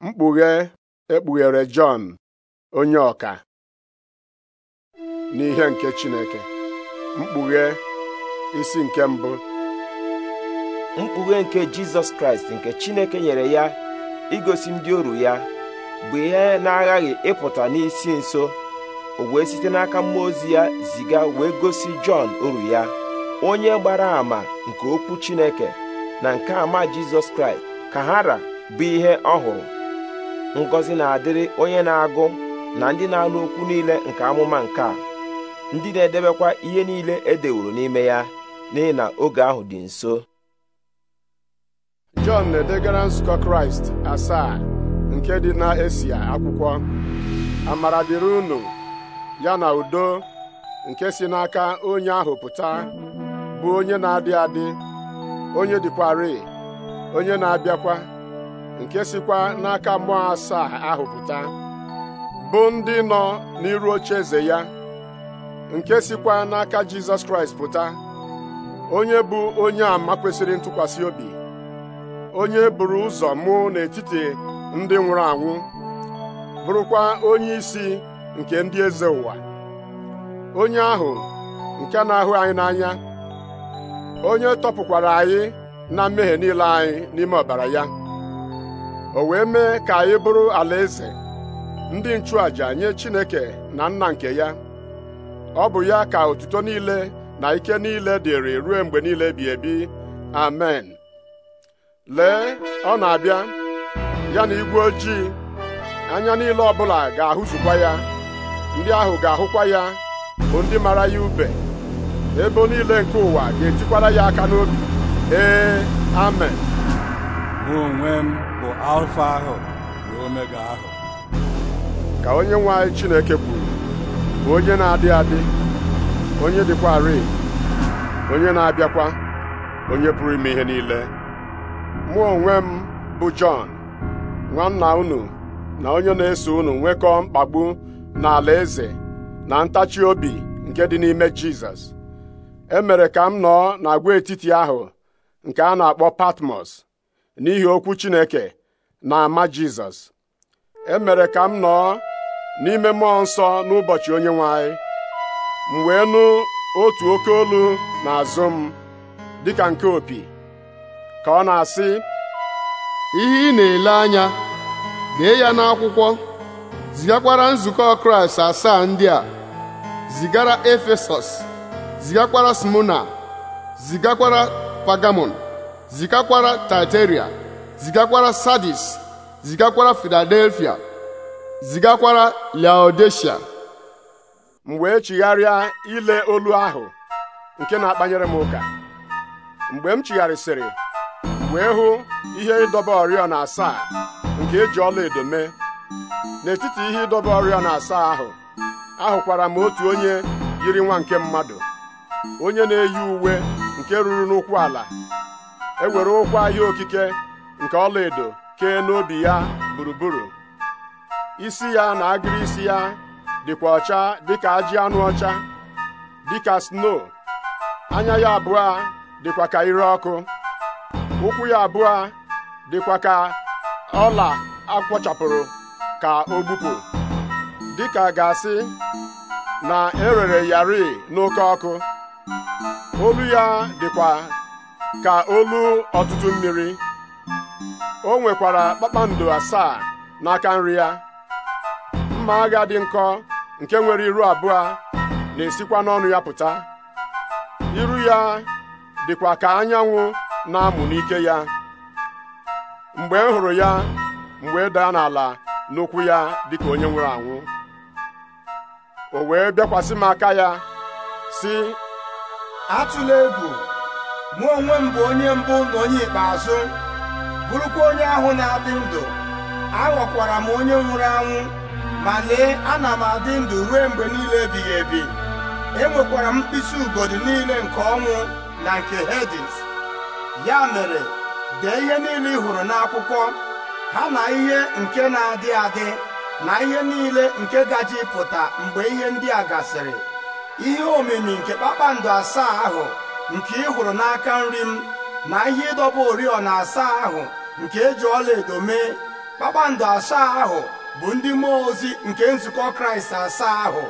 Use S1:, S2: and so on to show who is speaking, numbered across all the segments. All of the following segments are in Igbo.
S1: mkpughe ekpughere Jọn onye ọka
S2: n'ihe nke Chineke mkpughe isi nke mbụ mkpughe nke Jizọs Kraịst nke Chineke nyere ya igosi ndị oru ya bụ ihe na-aghaghị ịpụta n'isi nso o wee site n'aka mmụọ ozi ya ziga wee gosi Jọn oru ya onye gbara àmà nke okwu Chineke na nke àmà Jizọs Kraịst ka ra bụ ihe ọ ngọzi na-adịrị onye na-agụ na ndị na-anụ okwu niile nke amụma nke a ndị na-edebekwa ihe niile e dewuru n'ime ya n'ihi na oge ahụ dị nso
S1: Jọn na-edegara nzukọ Kraịst asaa nke dị na Esia akwụkwọ amara dịrị unu ya na udo nke si n'aka onye ahụ pụta bụ onye na-adị adị onye dịkwarị onye na-abịakwa nke sikwa n'aka mmụọ asaa ahụ pụta bụ ndị nọ n'iru oche eze ya nke sikwa n'aka Jizọs Kraịst pụta onye bụ onye àmà kwesịrị ntụkwasị obi onye buru ụzọ mụ n'etiti ndị nwụrụ anwụ bụrụkwa onye isi nke ndị eze ụwa onye ahụ nke na-ahụ anyị n'anya onye tọpụkwara anyị na mmehie niile anyị n'ime ọbara ya o wee mee ka anyị bụrụ alaeze ndị nchụàja nye Chineke na nna nke ya ọ bụ ya ka otuto niile na ike niile dịrị ruo mgbe niile bi ebi amen lee ọ na-abịa ya na igwe ojii anya niile ọbụla ga-ahụzukwa ya ndị ahụ ga-ahụkwa ya bụ ndị mara ya ube ebo niile nke ụwa ga-etikwara ya aka
S3: n'obi ee amen mụ onwe m bụ alfa ahụ na omega ahụ
S1: ka onye nwanyị Chineke kwuru bụ onye na-adị adị onye dịkwa dịkwarị onye na-abịakwa onye pụrụ ime ihe niile mụ onwe m bụ Jọn nwanna unu na onye na-eso unu nwekọọ mkpagbu n'ala eze na ntachi obi nke dị n'ime Jizọs e mere ka m nọọ n'agwaetiti ahụ nke a na-akpọ Patmos n'ihi okwu Chineke na ama Jizọs emere ka m nọ n'ime mmụọ nsọ n'ụbọchị onye nwanyị, m wee nụ otu oke olu n'azụ m dịka nke opi ka ọ na-asị ihe ị na-ele anya dee ya n'akwụkwọ zigakwara nzukọ Kraịst asaa ndị a zigara Efesọs zigakwara Smona zigakwara Pagamon zigakwara Taiteria zigakwara Sadis zigakwara Filadelfia zigakwara Laodicea. m wee chigharịa ile olu ahụ nke na-akpanyere m ụka mgbe m chigharịsịrị wee hụ ihe ịdọba oriọna asaa nke eji ọlaedo mee n'etiti ihe ịdọba oriọna asaa ahụ ahụkwara m otu onye yiri nwa nke mmadụ onye na-eyi uwe nke ruru n'ụkwụ ala ewere ụkwa ahịa okike nke ọlaedo kee n'obi ya gburugburu isi ya na agiri isi ya dịkwa ọcha dịka ajị anụ ọcha dịka sno anya ya abụọ dịkwa ka ire ọkụ ụkwụ ya abụọ dịkwa ka ọla akwọchapụrụ ka o gbupụ dịka gasị na erere yari n'oke ọkụ olu ya dịkwa ka olu ọtụtụ mmiri o nwekwara kpakpando asaa n'aka nri ya mma agha dị nkọ nke nwere iru abụọ na-esikwa n'ọnụ ya pụta iru ya dịkwa ka anyanwụ na-amụ n'ike ya mgbe m hụrụ ya mgbe e daa n'ala n'ụkwụ ya dịka onye nwere anwụ o wee bịakwasị m aka ya
S3: sị atụla egwu mụ onwe m bụ onye mbụ na onye ikpeazụ bụrụkwa onye ahụ na-adị ndụ aghọkwara m onye nwụrụ anwụ ma lee ana m adị ndụ ruo mgbe niile ebighị ebi enwekwara m mkpịsị ugodi niile nke ọnwụ na nke Hedis ya mere dee ihe niile ị hụrụ n'akwụkwọ ha na ihe nke na-adị adị na ihe niile nke gaji pụta mgbe ihe ndị a gasịrị ihe omimi nke kpakpando asaa ahụ nke ị hụrụ n'aka nri m na ihe ịdọba oriọna asaa ahụ nke eji edo mee kpakpando asaa ahụ bụ ndị mmụọ ozi nke nzukọ kraịst asaa ahụ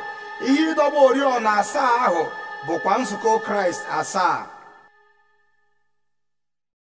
S3: ihe
S2: ịdọba oriọna asaa ahụ bụkwa nzukọ kraịst asaa